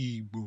igbo